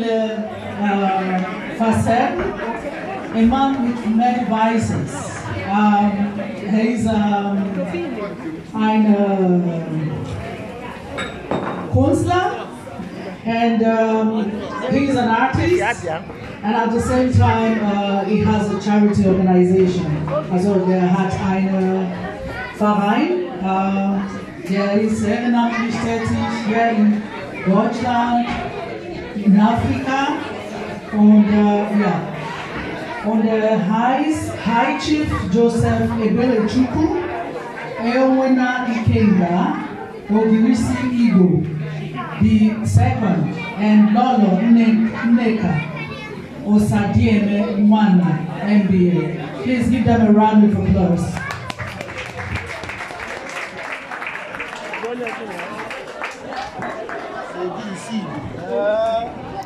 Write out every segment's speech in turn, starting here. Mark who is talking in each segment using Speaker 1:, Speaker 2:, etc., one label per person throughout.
Speaker 1: the uh, Fasel, a man with many vices. Um, he's um, an uh, counselor and um, he's an artist and at the same time uh, he has a charity organization as well der hat einen Verein uh, der ist ehrenamtlich tätig hier in Deutschland in Africa on the, yeah, on the High Chief Joseph Ebele Chuku, Ewena Ikenga, Ogirisi Igbo, the second, and Lolo Neka, Osadieme Mwana, MBA. Please give them a round of applause.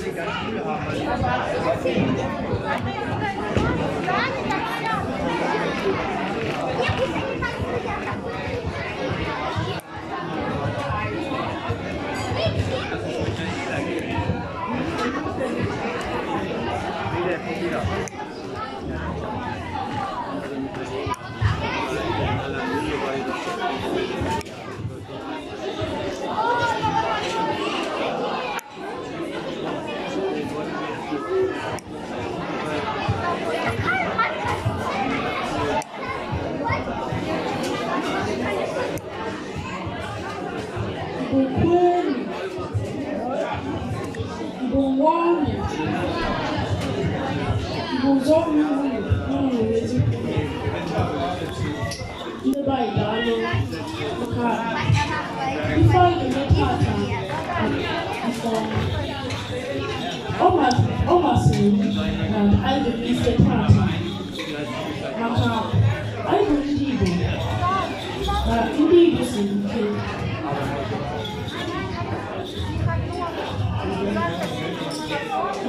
Speaker 1: Thank you. Bùsọ̀ mi wù nínú ìwé tí kò ní. Ní báyìí dáná, ọkà ifá ìlú pàtà ìfọ̀. Ọ masịrị m na anyị ga-ebi ise pàtà maka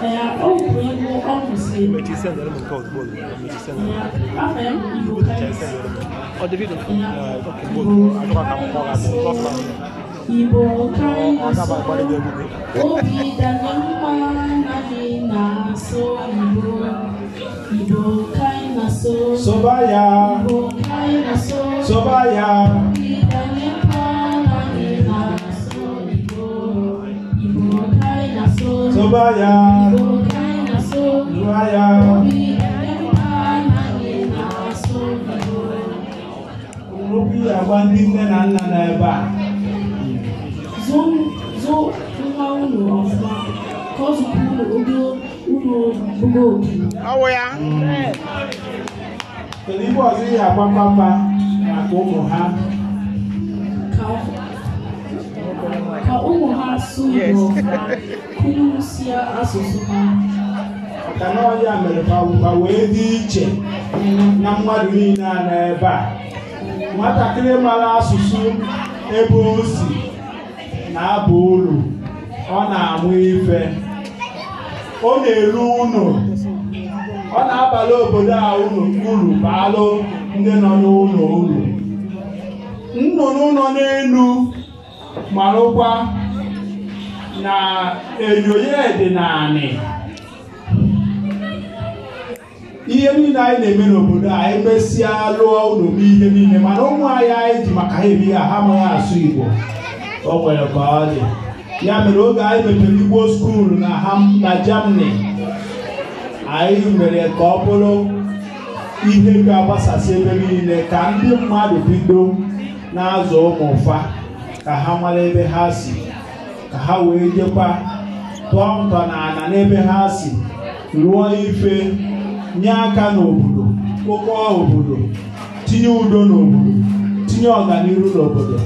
Speaker 1: Igbo karịrị asọ, obi dara mma anaghị na Tubaya, Tubaya. Rubi agba ndị nne na nna na ebe a. Zo nwa ụlọ ọfụma ka ọ zụpụ ụlọ ụlọ ụgbọ obi. Ọwụ ya. Kedu ibe ọzọ ihe agba papa maka ụmụ ha? Ka ụmụ ha asụ asụsụ ha maka na mere ka wee dị iche na mmadụ niile a n'ebe ebe a nwatakịrị mara asụsụ ebe o si na-aba ụlọ ọ na-amụ ife ọ na-eru ụlọ ọ na-abala obodo a unu uru baalụ ndị nọ n'ụlọ uru nnụnụ nọ n'elu marụkwa na enyo ya dị naanị ihe niile anyị na-eme n'obodo a anyị e mesịa lụọ ụlọ m niile mana ụmụ anyị anyị ji maka ha ebi ya ha amaghị asụ Igbo o nwere ka ọ dị ya mere oge anyị mepere Igbo skuulu na ha na Germany anyị mere ka ọ bụrụ ihe ga-agbasasị ebe niile ka ndị mmadụ bido na-azụ ụmụ ụfa ka ha mara ebe ha si ka ha wee jekwa tụọ ntọ na n'ebe ha si lụọ ife nye aka n'obodo kpokọọ obodo tinye udo n'obodo tinye ọganihu n'obodo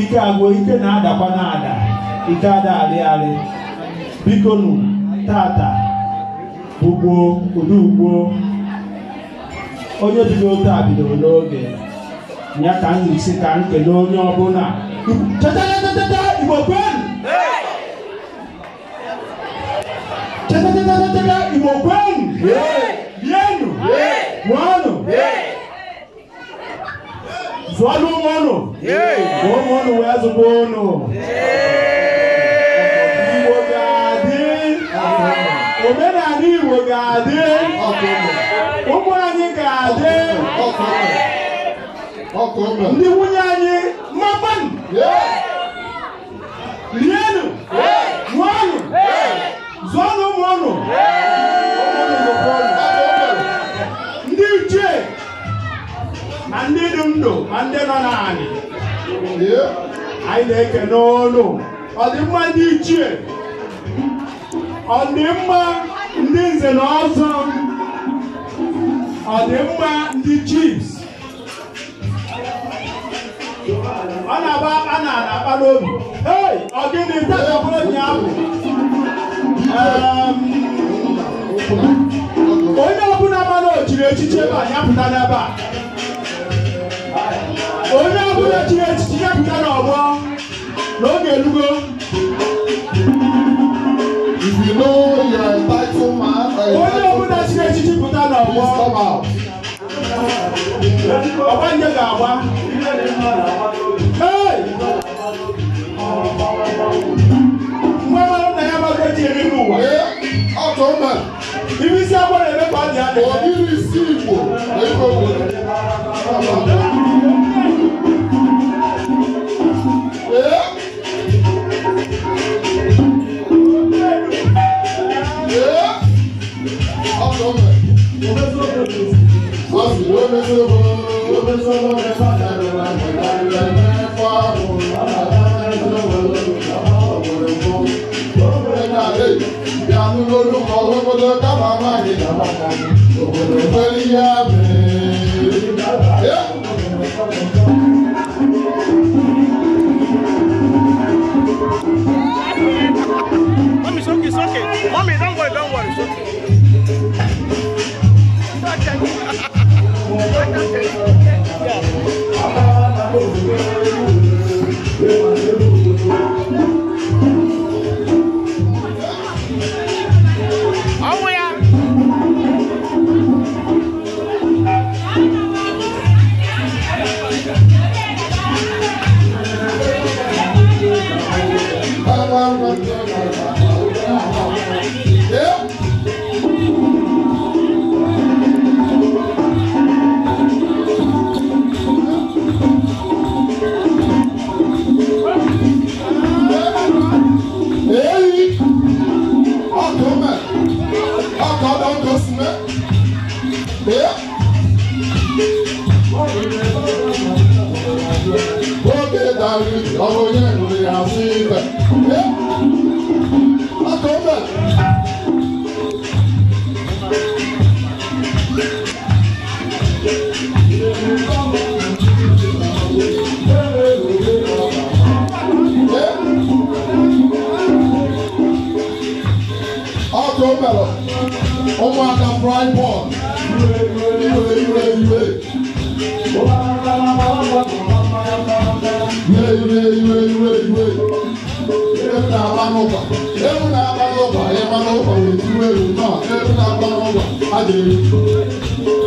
Speaker 1: ike agwụ ike na-adakwa na-ada ike ada arịarị biko nụ tata ụdị ugbo onye bido taa bidoro n'oge ya ka m si ka m onye ọbụla igbo kwee tetetetetete ìmọ̀ kwenu yenu mọ́nu zwalu mọ́nu wọ́n mọ́nu wẹ́ẹ́ zùgbọ́ nù. Igbo ga-adị omenala Igbo ga-adị ụmụ anyị ga nwunye anyị mapan rienụ ma ndị nọ n'anị anyị na-ekene olu ọdịmma ndị ichie ọdịmma ndị nze na ọzọ ọdịmma ndị chiefs ọ na-agba akpa na-akpa n'obi hei ọ gịnị tatapụrụ ụnyaahụ ehm, onye ọbụla mana o echiche ebe a ya n'ebe a onye ọbụla chiri echichi ya pụta n'ọgbọ n'oge elugo onye ọbụla chiri echichi pụta n'ọgbọ ọgbanje ga-agba nwa nna ya maka ji eri n'ụwa ibi isi agbara Mommy, don't worry, don't worry. It's okay. Thank you. Adé.